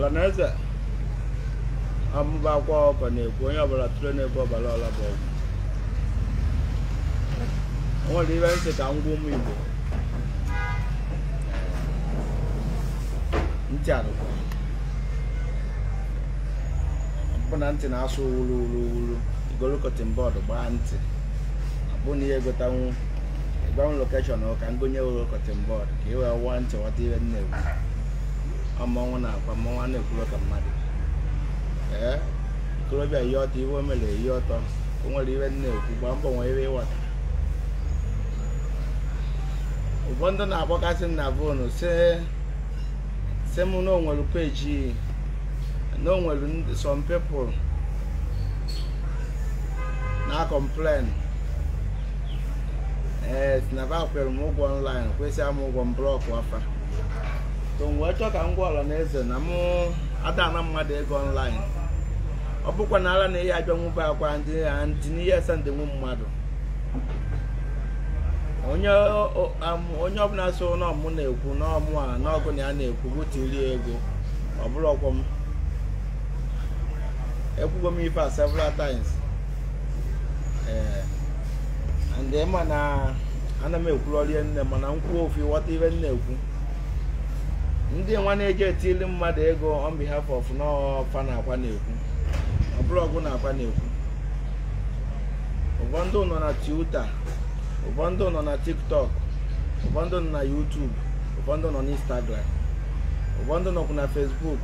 ọlanaeze amụba akwa ọkọ na-ekwu onye ọbụla tụrụ n'ebe ọbara ọla bụ ọgwụ o nwere ibe ntị ka ngwa ụmụ igbo ntị arụkwa bụ na ntị na-asụ wuru wuru wuru igolu kọtin bọọdụ gbaa ntị abụ na ihe gotanwu ịgbanwe lokeshọn ka m gonye wuru kọtin bọọdụ ka ị wee wụọ ntị ghọta ihe nne egwu ọkwa mmọnwụ na akwa mmọnwụ na-ekwuru ka mmadụ ee okorobịa ihe ọtọ iwe o mere ihe ọtọ o nwere iwe na-ekwu gbaa mbọ nwee iwe ịwata ụfọdụ na-akpọkasị m na vonu si m na onwere peji na onwere some people na complain ee tinaba kwere m ụgwọ online kwesịa m ụgwọ m blọkụ afa so m wee chọọ ka m gwa ọla na eze na m adana mmadụ ego online ọ bụkwa na ala na ihe abịanwube akwa ndị ndị n'ihe mmadụ onye ọbụla so n'ọmụ na-ekwu n'ọmụ a n'ọgụ na ya na-ekwu bụtiri ego ọ bụrụ ọkwọ m ekwugo m ife a several times ee ma na ana m ekwulọrie nne mana m kwuo ofu ghọta ihe na ekwu ndị nwa na-eje etili mmadụ ego on behalf of n'ọfa na akwa na-ekwu ọ na akwa na-ekwu Ụbọndụ nọ na Twitter Ụbọndụ nọ na TikTok Ụbọndụ nọ na YouTube Ụbọndụ nọ na Instagram Ụbọndụ nọkwu na fesbuk.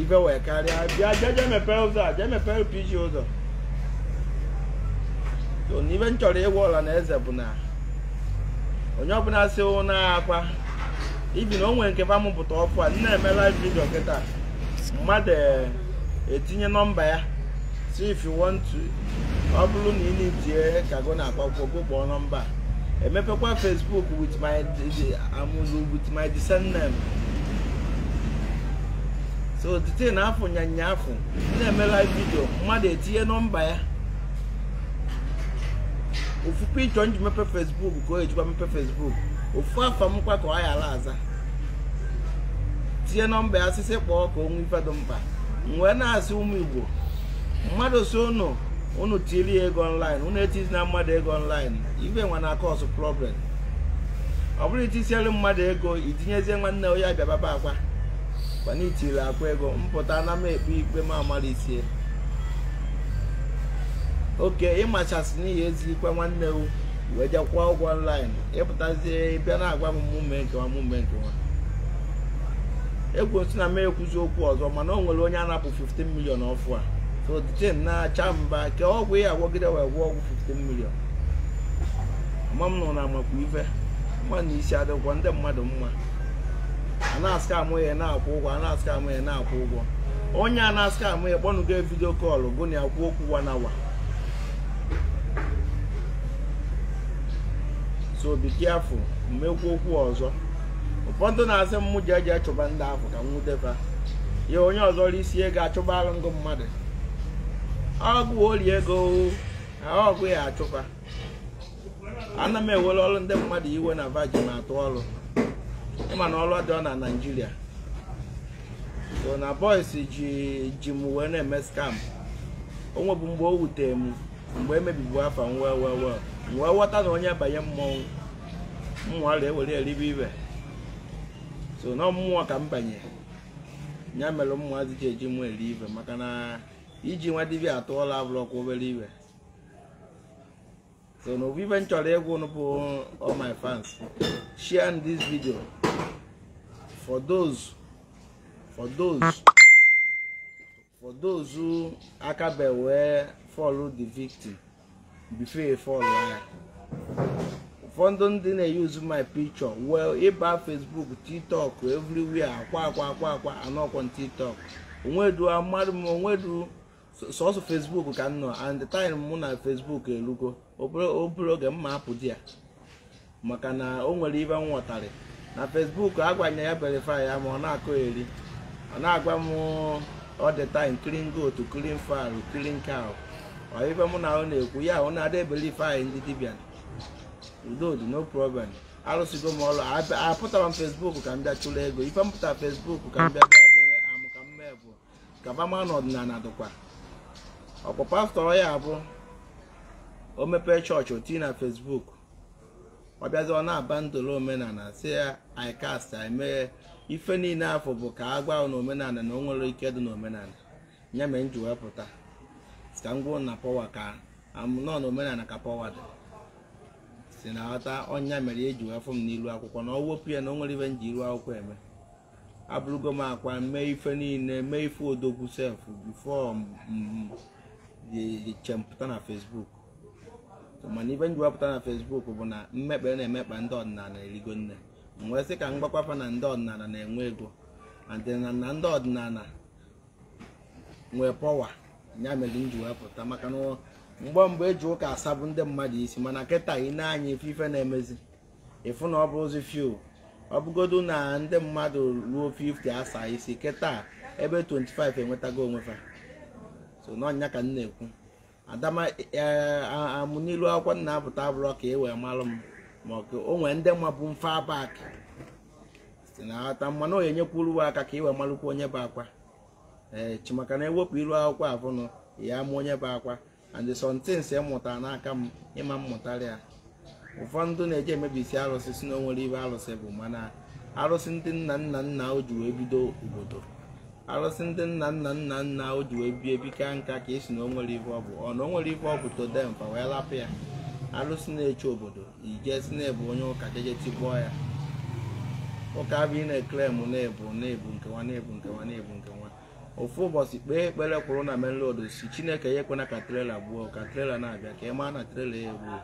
ibe wee karịa bịa jeje mepee ụzọ a jee mepee LPG ụzọ n'ibe m chọrọ ịgwa ọla na eze bụ na onye ọbụla si na akwa ibi na o nwere nke bamụpụta ọkụ a nna eme live video kịta mmadụ e, etinye nọmba ya si if you want to ọ bụrụ na ị na-etinye go na akpakwụkwọ gụkpọọ nọmba emepekwa Facebook with my amụzụ with my descent name so otite na afọ nyanya afọ na-eme live video mmadụ etinye nọmba ya ofu pichọ nji mepe Facebook ka o ejikwa mepe Facebook ofu afọ m ka ọ ghara aza tinye nọmba ya asịsị kpọọ ka onwe ife dị mkpa wee na-asị ụmụ igbo mmadụ si ụnụ ụnụ tiri ya ego online ụnụ etizi na mmadụ ego online ibe nwa na akọsụ problem ọ bụrụ itisiere mmadụ ego itinyezie nwanne onye bịababa akwa mana itiri akwa ego mpụta na m ekpe ikpe ma amalisie isie oke ịmachasị n'ihi ezi ikpe nwanne wu wee jakwa ụgwọ online ịpụtazie bịa na-agwa m mume nkewa mume nkewa ekwusi na m ekwuzi okwu ọzọ mana o nwere onye napụ 15 milion ọfụ a so the na-acha mba ka ọgwụ ya agwọgide wee gwụọ ọgwụ 15 million ma m nọ na amakwa ife mma na isi adịgwọ ndị mmadụ mma a na-asị amụ ya na-akwụ ụgwọ a na amụ ya na-akwụ ụgwọ onye a na-asị amụ ya kpọnụgo vidio kọlụ gụ na ya kwuo okwu wanawa so be careful mmekwu okwu ọzọ ụfọdụ na-asị m ji eji achụba ndị ahụ ka nwudefa ya onye ọzọ isi ego achụba alụ mmadụ ọgụ orie ego ọgụ ya achụkwa ana m ewere ọrụ ndị mmadụ iwe na vajin atụ ọrụ ịma na ọrụ dị ọ na naijiria so na bọis ji ji m wee na-eme skam o mgbe o wutere m mgbe emebibu afa nwa wee wee ghọta na onye abanye mmọnwụ mmụọ ewere eribe ibe so na mmụọ ka m banye ya mere mmụọ adịghị eji mụ eri ibe maka na iji nwa atụ atụọla abụrọkwa obere ibe so na obibe m chọrọ ịgwụ bụ all my fans share this video for those for those for those aka be wee follow the victim before follow ya ụfọdụ ndị na-eyuzu my picture well ịba Facebook TikTok everywhere akwa akwa akwa akwa anọkwa TikTok onwedu amadụ m onwedu sọsọ Facebook ka nnọọ nọ and the time mụ na Facebook erugo obere oge m ma hapụ di ya maka na o nwere ibe m nwọtarị na Facebook agwanye ya verify ya ma ọ na-akọ eri ọ na-agwa m ọ dị time clean goat clean fowl clean cow ife mụ na ahụ na-ekwu ya ahụ na-ada ebelife anyị ndị dibịa udo dị no problem arụsigo m ọrụ apụtara m fesbuk ka m bịa ego ife m fesbuk ka m bịa bịa bere amụ ka m mee bụ kaba bama na ọdịnala dịkwa ọkpọ pastọ ya abụ o mepee chọọchị otii na fesbuk ọ bịazi ọ na-aba ndolo omenala si ya ikast emeghe ife niile afọ bụ ka a gwa na omenala na o nwere ike dị n'omenala ya mere m ji sika ngwa na pọwa ka nọ na omenala ka pọwa dị si na ghọta ọnya mere eji wee fụ m n'ilu akwụkwọ na ọ wepụ ya na o nwere ibe m ji iru akwụkwọ eme abụrụgo m akwa mee ife niile mee ife odogwu sef bifo chempụta na fesbuk mana ibe m ji wepụta na fesbuk bụ na mmekpa e na-emekpa ndị ọdịnala erigo nne m wee sị ka m gbakwapa na ndị ọdịnala na-enwe ego na ndị ọdịnala nwee pọwa ya mere m ji pụta maka na mgbe mgbe eji ụka asabụ ndị mmadụ isi mana nkịta ị na-anya ife ife na-emezi ịfụ na ọ bụ ozi fiu ọ na ndị mmadụ ruo 50 asaa isi kịta ebe 25 enwetago onwe fa so n'ọnya ka m na-ekwu adama e, amụ n'ilu akwụkwọ nna apụta bụrọ ka e wee malụ m ma o nwee ndị mabụ mfe abak si na ghọta mmanụ onye nyekwuru aka ka i wee malụkwa onye bụ akwa ee eh, chimaka na ewepụ iru akwụkwọ abụnụ ya ma onye bụ akwa and somethings e mụtara n'aka m ịma mmụtara ya ụfọdụ na eje emebisi arụsị si na ibe arụsị bụ mana arụsị ndị nna nna nna o ji wee bido obodo arụsị ndị nna nna nna nna o ji wee bie ka nka ka esi na onwere ibe ọbụ bụ ọ na ibe ọbụ todempa wee lapụ ya arụsị na-eche obodo ijesi na-ebu onye ụka jeje tigbuo ya ụka bụ ị na-eklem na-ebu na-ebu nkewa na-ebu nkewa na-ebu nkewa ofu ụbọchị kpee ekpere kwụrụ na main si chineke ya ekwena ka trela gbuo ka trela na-abịa ka ị maa na trela ya egbuo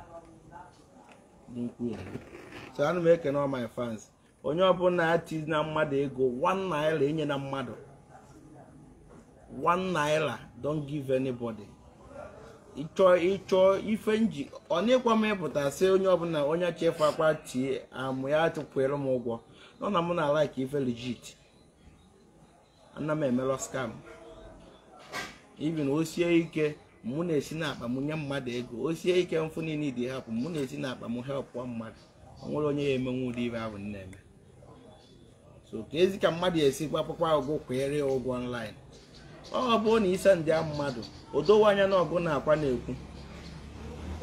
n'ukwu so ana m ekene my fans onye ọbụla ati na mmadụ ego 1 naira enye na mmadụ 1 naira don't give anybody ịchọ ịchọ ife nji ọ n'ịkwa m ịpụta sị onye ọbụla onye chefu akwa tie amụ ya atụkwere m ụgwọ nọ na m na ala ife legit ana m emelọ skam Ibi o sie ike mụ na-esi n'akpa m nye mmadụ ego o sie ike mfụ niile dị hapụ mụ na-esi n'akpa m helpụọ mmadụ ọ nwere onye ya emenwu ụdị ibe ahụ na-eme so ka ezi ka mmadụ esi gbapụkwa ụgwọ kweere ya ụgwọ ọnlaịn. ọ bụrụ na ise ndị mmadụ o dowe anya na ọgụ na-akwa na-ekwu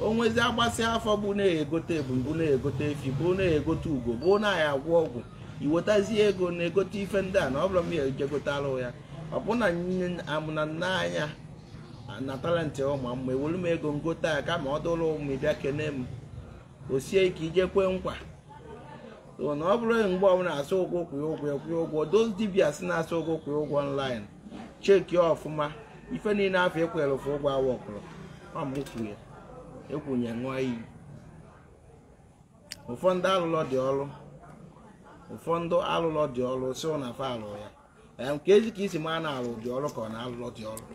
onwezi agbasị afọ bụ na-egote ebu na-egote efi bụ na-egote ugo bụ na ya agwọ ọgwụ iwetazie ego na-egote ife ndị a na ọ bụrụ m ya ejegotara ya ọ bụ na amụna nna anya na talentị ụmụ mma ewere m ego ngote a kama ọ dụrụ ụmụ ịbịa kene m o sie ike ije kwe nkwa na ọ bụrụ mgbe ọbụla asụ ụgwọ kwụ ụgwọ kwụọ ụgwọ doz dibia si na-asụ ụgwọ kwụ ụgwọ online cheki ọfụma ife niile afọ ekwere ụfụ ụgwọ awa ọkụrụ ekwunye ṅụọ iyi ụfọdụ alụlọ dị ọrụ ụfọdụ alụlọ dị ọrụ si na fa alụ ya nke eji ka isi maa na-alụ dị ọrụ ka ọ na-alụlọ dị ọrụ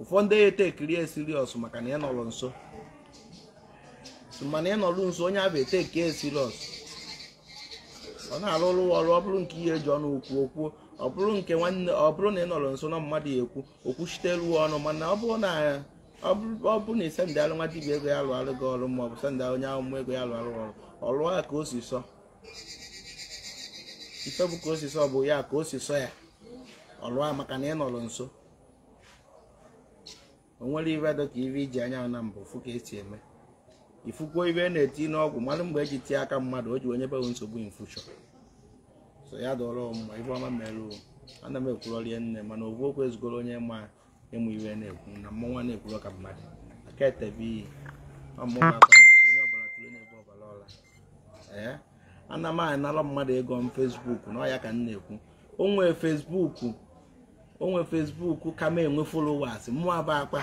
ụfọdụ ete kirie siriọs maka na ị nọrọ nso mana ị nọrọ nso onye abụ ete kie siriọs ọ na-alụrụ ọrụ ọ bụrụ nke ihe eji ọnụ okwu okwu ọ bụrụ nke nwanne ọ bụrụ na ị nọrọ nso na mmadụ ya ekwu okwuchiteruo ọnụ mana ọ bụrụ na ọ bụrụ na ị sendalụ nwa dibịa ego ya alụ alụ gị ọrụ ma ọ bụ sendalụ onye ahụ ego ya alụ alụ ọrụ ọlụọ ka o si sọ ife bụ ka o si sọ bụ ya ka o si sọ ya ọlụa ya maka na ị nọrọ nso o nwere ibe dị ka ibe iji anya na mbụ fụ ka esi eme ifukwuo ibe na-eti n'ọgwụ mmadụ mgbe eji tie aka mmadụ o ji onye bewe nsogbu infushọ so ya dọrọ mma ife ọma mere ana m ekwurorie nne mana ovu okwu ezugoro onye ma ịmụ iwe na-ekwu na nwa na-ekwuro ka mmadụ aka etebe iyi Eh? ana m anara mmadụ ego m fesbuk na ọya ka m na-ekwu onwe fesbuku onwe fesbuku ka m enwe folowas mụọ bụ akpa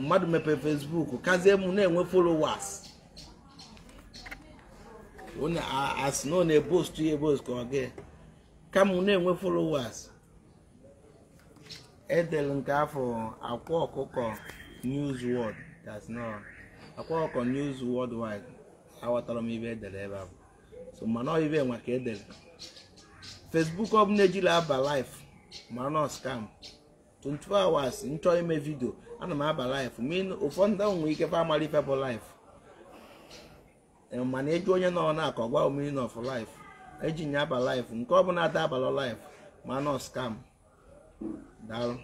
mmadụ mepee fesbuk kazie m na-enwe folowas onye asị na ọ na-ebostu ya ebostu ka ọ gị kama na-enwe folowas edere nke afọ akwa ọkụkọ news world akwa ọkụkọ news worldwide aghọtara m ibe edere ebe a so mana ọ ibe nwa ka edere bụ ọbụla ejila aba laif mara na scam 24 hours nchọ ime vidio ana m aba life ụfọdụ ndị nwere ike fa amara ife bụ life mana ịjụ e onye nọ na akọ ọ gwa omiri of life eji nye aba laif nke ọ ọbụla ada abala life mana scam daalụ